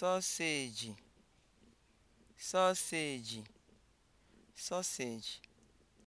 soseji soseji